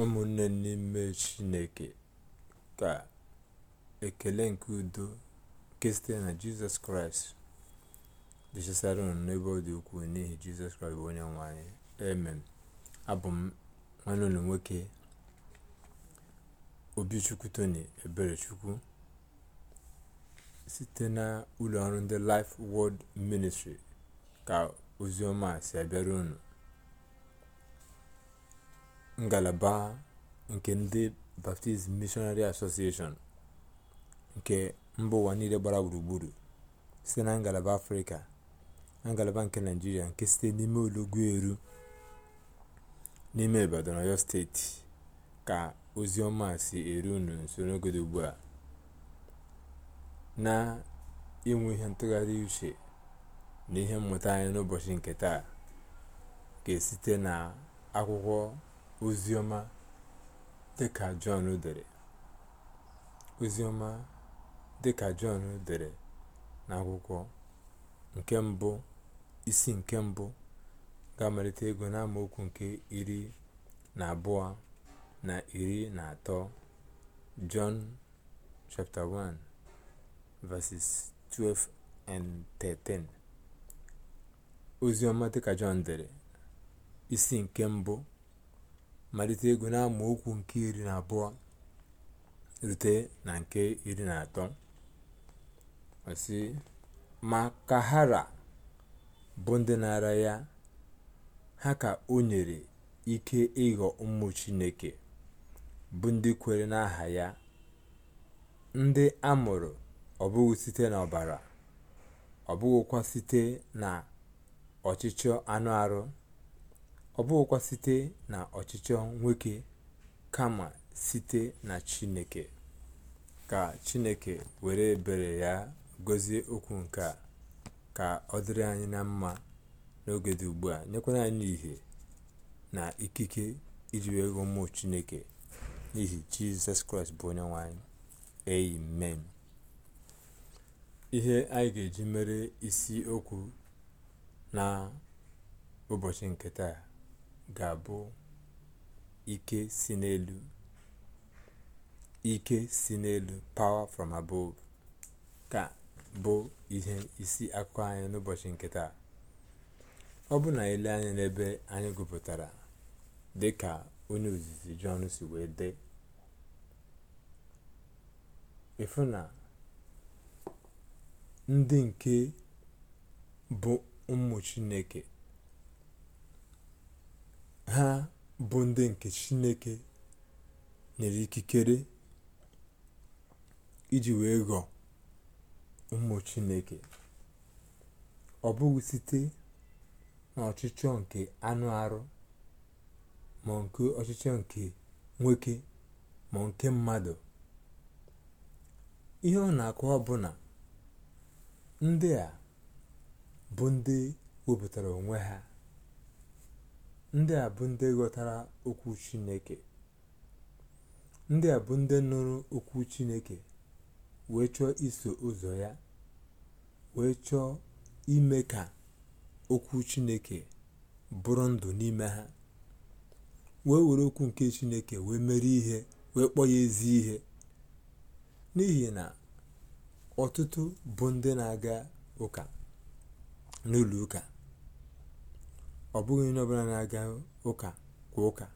ụmụnne n'ime chineke ka ekele nke udo nke site na jizọs kraịst dịchasịara unu n'ebe ọ dị ukwuu n'ihi jizọs kraịst bụ onye nwanyị emem abụ m nwanne unu nwoke obichukwu eberechukwu site na ụlọ ọrụ ndị life world ministry ka ozi ọma si abịara unu ngalaba nke ndị baptist missionary association nke mba ụwa niile gbara gburugburu site na ngalaba afrịka ngalaba nke naịjirịa nke site n'ime eru n'ime ibadan ọyọ steeti ka ozi ọma si eru unu nso n'oge dị ugbu a na inwe ihe ntụgharị uche na ihe mmụta anyị n'ụbọchị nke taa ga site na akwụkwọ oziọma dịka Jọn dere oziọma dịka Jọn dere n'akwụkwọ nke mbụ isi nke mbụ ga-amalite ego n'amaokwu nke iri na abụọ na iri na atọ Jọn chapter 1 verses 12 and 13 oziọma dịka Jọn dere isi nke mbụ malite ego n'amaokwu nke iri na abụọ rute na nke iri na atọ ma kahara bụ ndị na-ara ya ha ka o nyere ike ịghọ ụmụ chineke bụ ndị kwere n'aha ya ndị a mụrụ ọ bụghị site n'ọbara ọ bụghịkwa site na ọchịchọ anụ arụ ọ bụghịkwa site na ọchịchọ nwoke kama site na chineke ka chineke were bere ya gọzie okwu nke a ka ọ dịrị anyị na mma n'oge dị ugbu a nyekwara anyị ihe na ikike iji wee ghọọ ụmụ chineke n'ihi jizọs kraịst bụ onye nwanyị amen ihe anyị ga-eji mere isi okwu na ụbọchị nke taa ga-abụ ike si n'elu ike si n'elu power from above ka bụ ihe isi akụkọ anyị n'ụbọchị nke taa ọ bụ na ele anya n'ebe anyị gụpụtara dị ka onye ozizi jọn si wee dee ịfụ na ndị nke bụ ụmụ chineke ha bụ ndị nke chineke nyere ikikere iji wee ghọọ ụmụ chineke ọ bụghị site n'ọchịchọ nke anụ arụ ma nke ọchịchọ nke nwoke ma nke mmadụ ihe ọ na akụ bụ na ndị a bụ ndị wepụtara onwe ha ndị a bụ ndị ghọtara okwu chineke ndị a bụ ndị nụrụ okwu chineke wee chọọ iso ụzọ ya wee chọọ ime ka okwu chineke bụrụ ndụ n'ime ha wee were okwu nke chineke wee mere ihe wee kpọọ ya ezi ihe n'ihi na ọtụtụ bụ ndị na-aga ụka n'ụlọ ụka ọ bụghị onye ọbụla na-aga ụka kwa ụka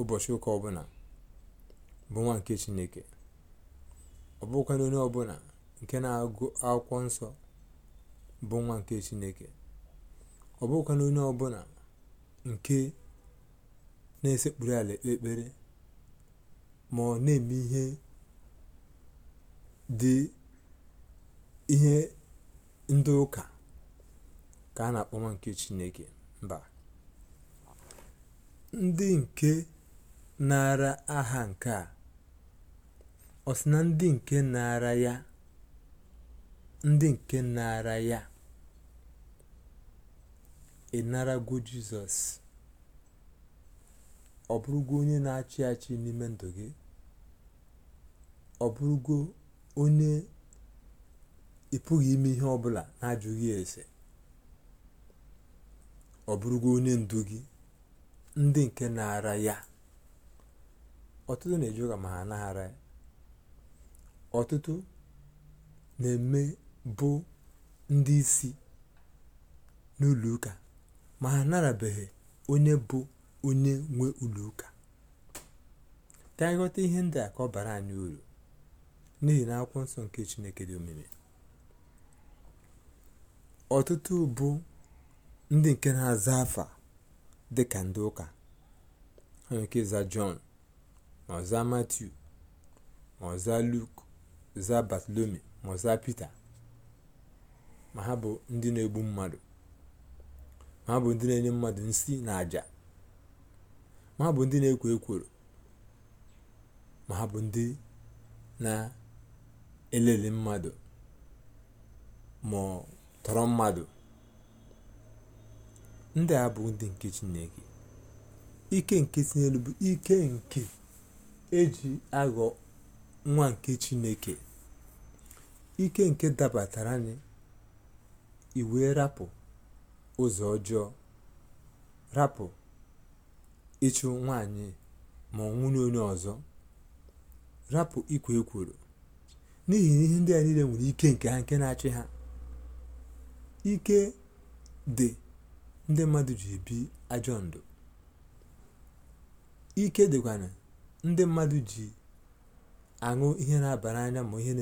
ụbọchị ụka ọbụla bụ nwa nke chineke ọ bụghịkwana onye ọbụla nke na-agụ akwụkwọ nsọ bụ nwa nke chineke ọ bụghịkwana onye ọbụla nke na-esekpuru ala ekpere ma ọ na-eme ihe dị ihe ndị ụka ka a na-akpọ nwa nke chineke mba ndị nke naara aha nke a ọ sị na ndị nke naara ya ndị nke naara ya ịnarago jizọs ọ bụrụgwo onye na-achị achị n'ime ndụ gị ọ bụrụgo onye ị pụghị ime ihe ọbụla na-ajụghị ese ọ bụrụ bụrụgo onye ndu gị ndị nke na-ara ya ọtụtụ na-eji ụka ma ha na-ara ya ọtụtụ na-eme bụ ndị isi n'ụlọ ụka ma ha na-arabeghị onye bụ onye nwe ụlọ ụka ihe ndị a ka ọ bara anyị uru n'ihi na akwụkwọ nsọ nke chineke dị omimi ọtụtụ bụ ndị nke na-aza afa dị ka ndị ụka ha nke ike ịza jọn ma ọza ma ọza luk za batlomi ma ọza zaa ma ha bụ ndị na-egbu mmadụ ma ha bụ ndị na-enye mmadụ nsi na aja ma ha bụ ndị na-ekwo ekworo ma ha bụ ndị na-elele mmadụ ma tọrọ mmadụ ndị a bụ ndị nke chineke ike nke si bụ ike nke eji aghọ nwa nke chineke ike nke dabatara anyị iwe rapụ ụzọ ọjọọ rapụ ịchụ nwanyị ma ọ nwụrụ onye ọzọ rapụ ikwe ekworo n'ihi na ihe ndị a niile nwere ike nke ha nke na-achị ha ike dị ndị mmadụ ji ebi ajọ ndụ ike dịkwana ndị mmadụ ji aṅụ ihe na-aba n'anya ma ihe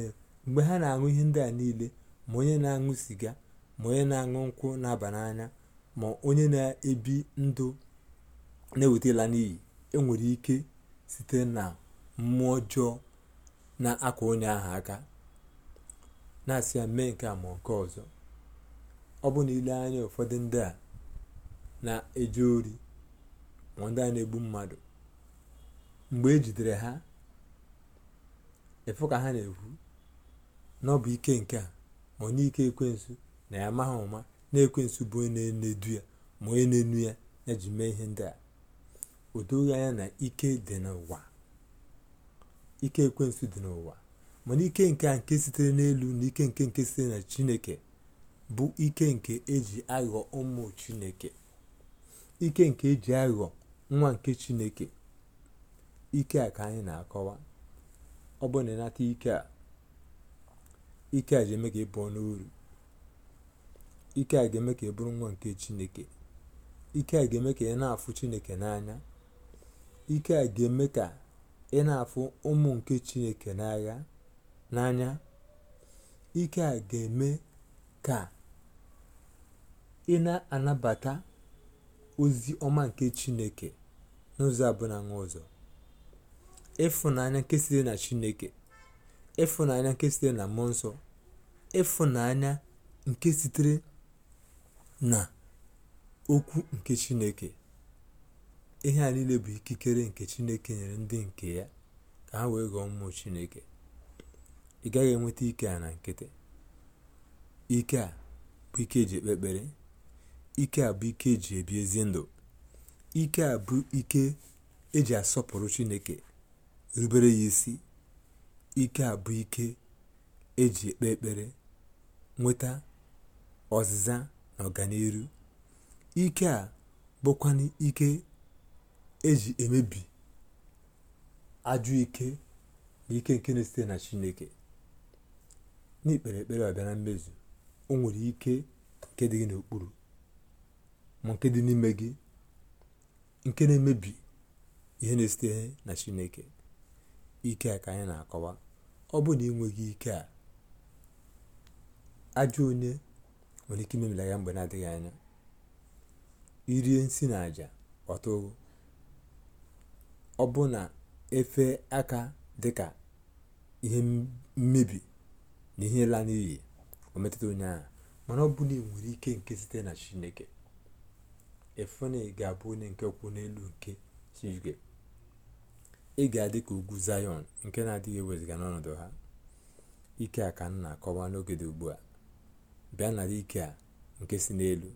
mgbe ha na-aṅụ ihe ndị a niile ma onye na-aṅụ siga ma onye na-aṅụ nkwụ na-aba n'anya ma onye na-ebi ndụ na ewetela n'iyi enwere ike site na mmụọ ọjọọ na akwa onye ahụ aka na-asị ya mee nke ma nke ọzọ ọ bụ na ile anya ụfọdụ ndị a na-eje ori ma ndị a na-egbu mmadụ mgbe e jidere ha ịfụ ka ha na-ekwu na ike nke a ma ọ n'ike na ya amaghị ụma na ekwensu bụ onye na-enedu ya ma onye na-enu ya ya ji mee ihe ndị a o anya na ike dị n'ụwa ike ekwensu dị n'ụwa mana ike nke a nke sitere n'elu na ike nke nke sitere na chineke bụ ike nke eji aghọ ụmụ chineke ike nke eji aghọ nwa nke chineke ike a ka anyị na-akọwa ọ bụ na ịnata ike a ike a ga-eme ka ị pụọ n'uru ike a ga-eme ka ị bụrụ nwa nke chineke ike a ga-eme ka ị na-afụ chineke n'anya ike a ga-eme ka ị na-afụ ụmụ nke chineke n'agha n'anya ike a ga-eme ka ị na-anabata ozi ọma nke Chineke n'ụzọ abụọ na ụzọ ịfụnanya nke site na Chineke ịfụnanya nke sitere na mmụọ nsọ ịfụnanya nke sitere na okwu nke Chineke ihe a niile bụ ikikere nke Chineke nyere ndị nke ya ka ha wee ghọọ mmụọ Chineke ị gaghị enweta ike a na nkịtị ike a bụ ike eji ekpe ekpere ike a bụ ike eji ebi ezi ndụ ike a bụ ike eji asọpụrụ chineke rubere ya isi ike a bụ ike eji ekpe ekpere nweta ọzịza na ọganihu ike a bụkwanụ ike eji emebi ajụ ike na ike nke na-esite na chineke n'ikpere ekpere ọbịa na mmezu o nwere ike nke dị gị n'okpuru ma nke dị n'ime gị nke na-emebi ihe na-esite na chineke ike a ka anyị na-akọwa ọ bụ na ịnweghị ike a ajọ onye nwere ike imemila ya mgbe na-adịghị anya irie nsi na aja ọtụụ ọ bụ na efe aka dị ka ihe mmebi na ihe la n'iyi metụta onye mana ọ bụ na enwere ike nke site na chineke efene ga-abụ onye nke kwụ n'elu nke shishge ị ga-adị ka ugwu zayọn nke na-adịghị ewezụga n'ọnọdụ ha ike a ka nna akọwa n'oge dị ugbu a bịa nara ike a nke si n'elu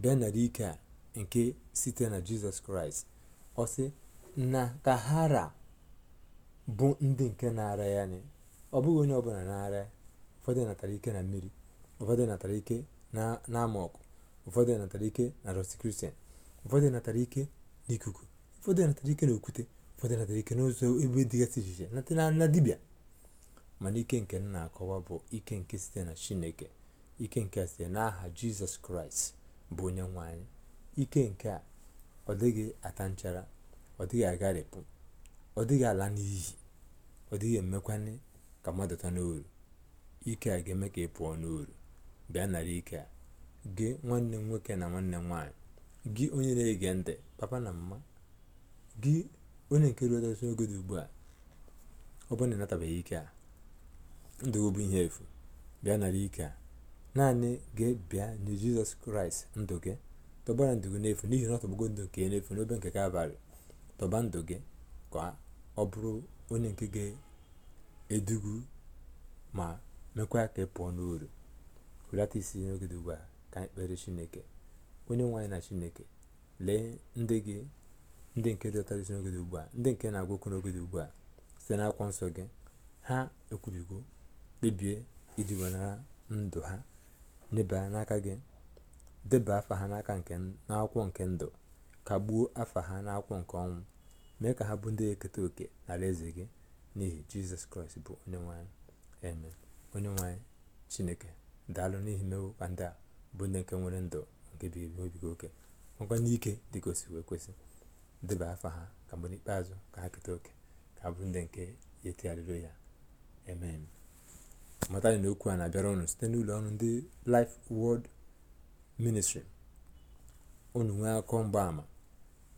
bịa nara ike a nke site na jizọs kraịst ọ sị na ka hara bụ ndị nke na-ara ya anyị ọ bụghị onye ọbụla na-ara ya ụfọdụ natara ike na mmiri ụfọdụ natara ike na amọkụ ụfọdụ natara ike na rọsikristian ụfọdụ natara ike n'ikuku ụfọdụ natara ike n'okwute ụfọdụ natara ike n'ụzọ ebe dịgasị iche iche natara na dibịa mana ike nke nna na-akọwa bụ ike nke site na chineke ike nke site n'aha jizọs kraịst bụ onye nwe anyị ike nke a ọ dịghị ata nchara ọ dịghị agharịpụ ọ dịghị ala n'iyi ọ dịghị emekwanye ka mmadụ ta n'oru ike a ga-eme ka ị pụọ n'oru bịa nara ike a gị nwanne m nwoke na nwanne m nwaanyị gị onye na-ege ntị papa na mma gị onye nke ruotasị oge dị ugbu a ọ bụrụ na ịnatabeghị ike a ndụ bụ ihe efu bịa nara ike a naanị gị bịa nye jizọs kraịst ndụ gị tọbara ndụ gị n'efu n'ihi na ọ tọgbago ndụ nke n'efu n'obe nke kalvarị tọba ndụ gị ka ọ bụrụ onye nke ga-edugu ma mekwa ka ị pụọ n'uru hulata isi n'oge dị ugbu a ka anyị kpere chineke onye nwe na chineke lee ndị gị ndị nke dọtara isi n'oge ugbu a ndị nke na-agwa okwu n'oge ugbu a site n'akwụkwọ nsọ gị ha ekwubigo kpebie iji wenara ndụ ha nyebara n'aka gị deba afa ha n'aka nke n'akwụkwọ nke ndụ kagbuo afa ha n'akwụkwọ nke ọnwụ mee ka ha bụ ndị eketa oke n'ala eze gị n'ihi jizọs kraịst bụ onye nwanyị onye nwanyị chineke daalụ n'ihi mmewo ka ndị a bụ ndị nke nwere ndụ nke bi ebi oke nwekwa n'ike dị ka wee kwesị deba afa ha ka mgbe n'ikpeazụ ka ha keta oke ka ha bụrụ ndị nke ya ya eme matani na okwu a na-abịara ụnụ site n'ụlọ ọrụ ndị Life Word ministrị ụnụ nwee akọ mgbaama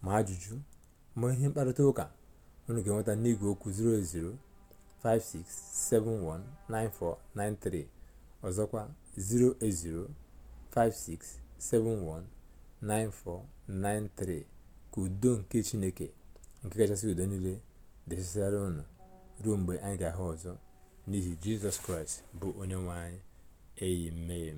ma ajụjụ ma ihe mkparịta ụka unu ga-enweta n'igwe okwu 0056719493 ọzọkwa 080 56719493 ka udo nke chineke nke kachasị udo niile dịsịsịara unu ruo mgbe anyị ga-ahụ ọzọ n'ihi jizọs kraịst bụ onye nwe anyị eyi mee